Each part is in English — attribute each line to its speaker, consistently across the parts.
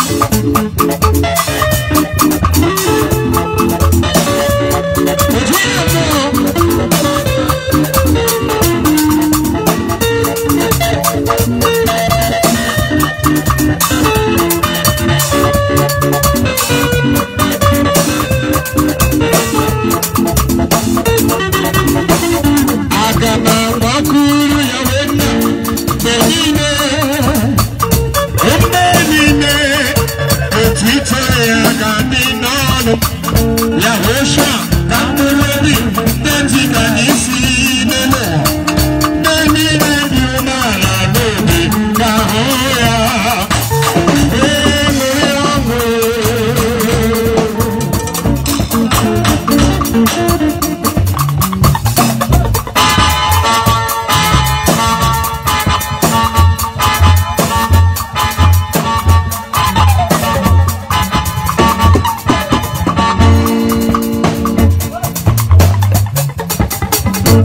Speaker 1: Thank you.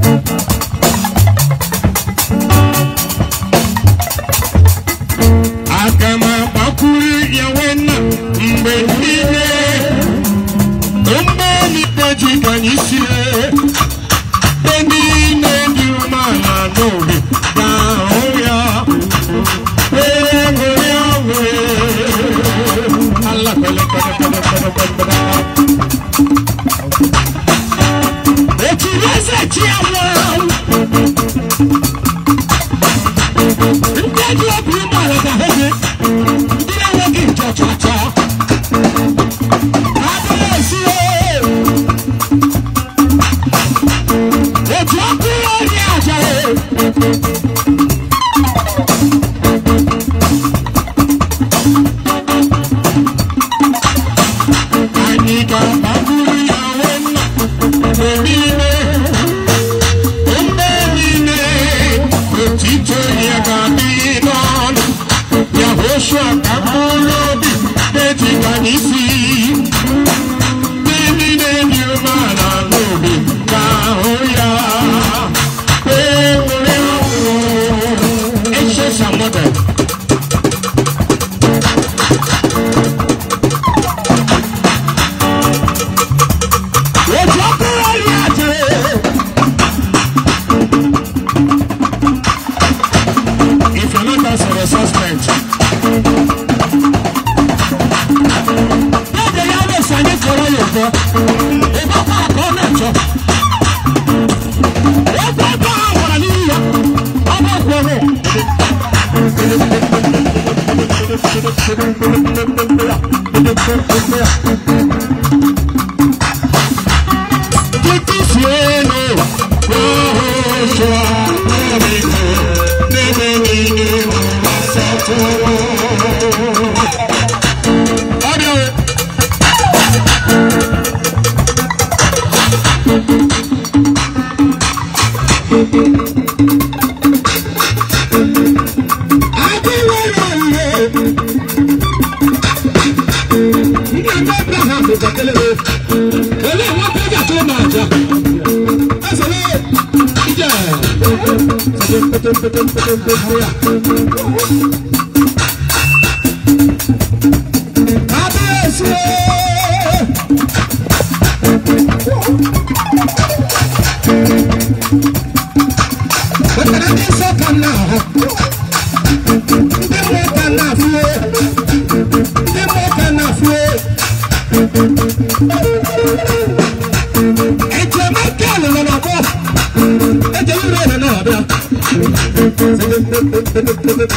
Speaker 1: thank ní ìgbà Abraham kò tẹ̀lé o èlé ìwọ péjà tó máa jà ẹsẹ̀ lé jíjẹ. Kábíyèsí o.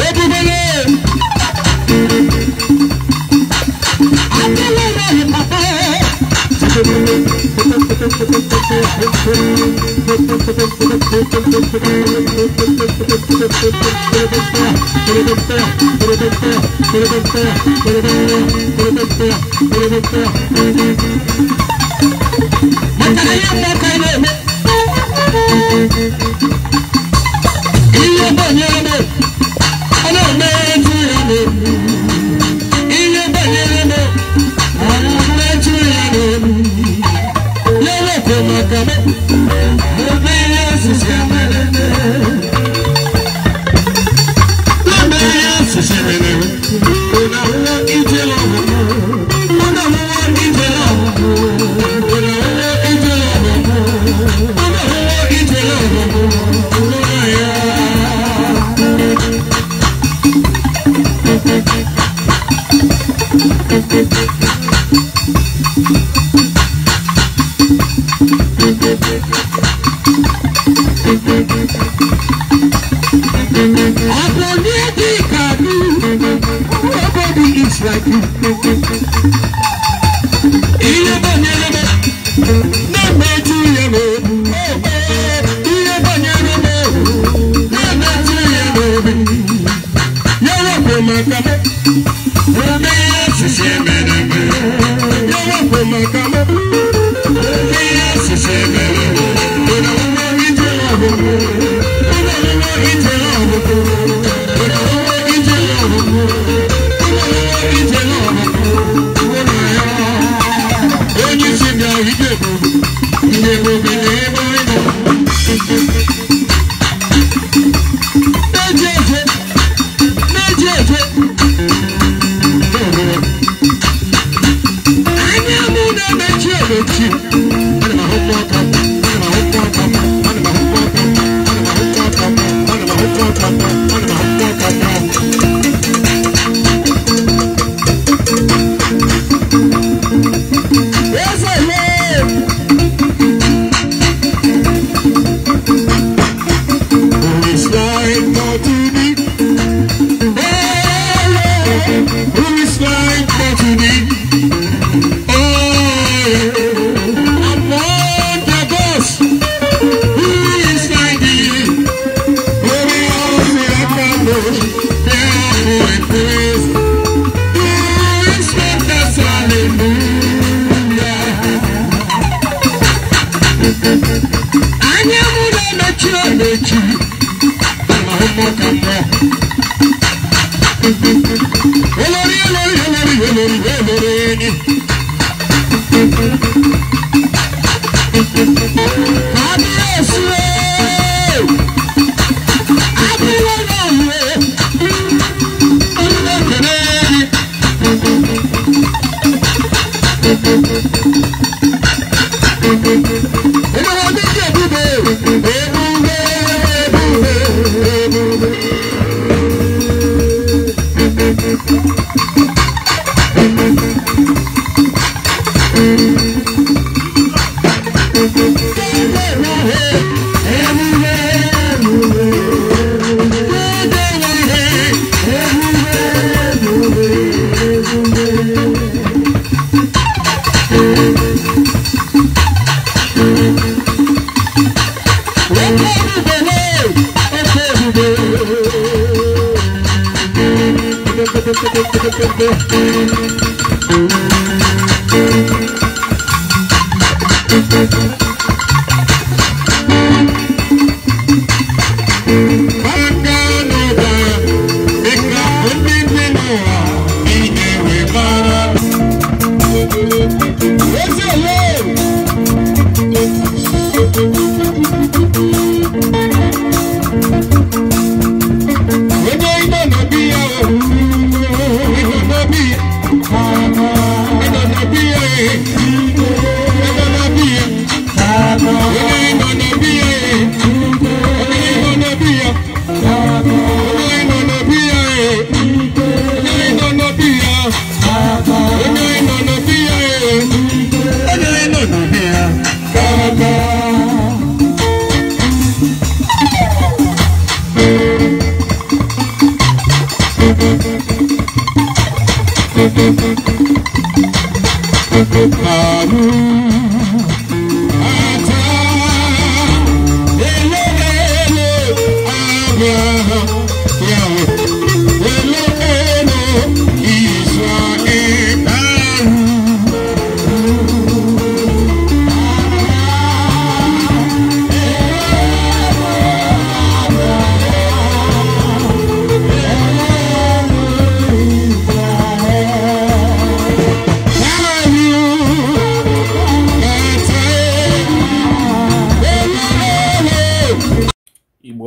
Speaker 1: go. love you till I Thank Olori olori olori olori olori Thank you.